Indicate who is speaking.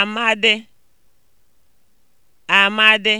Speaker 1: Amadị, Amadị